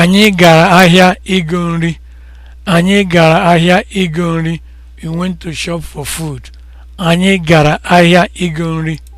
Anyị gara ahịa ịgo nri. Anyị gara ahịa ịgo nri. We went to shop for food. Anyị gara ahịa ịgo nri.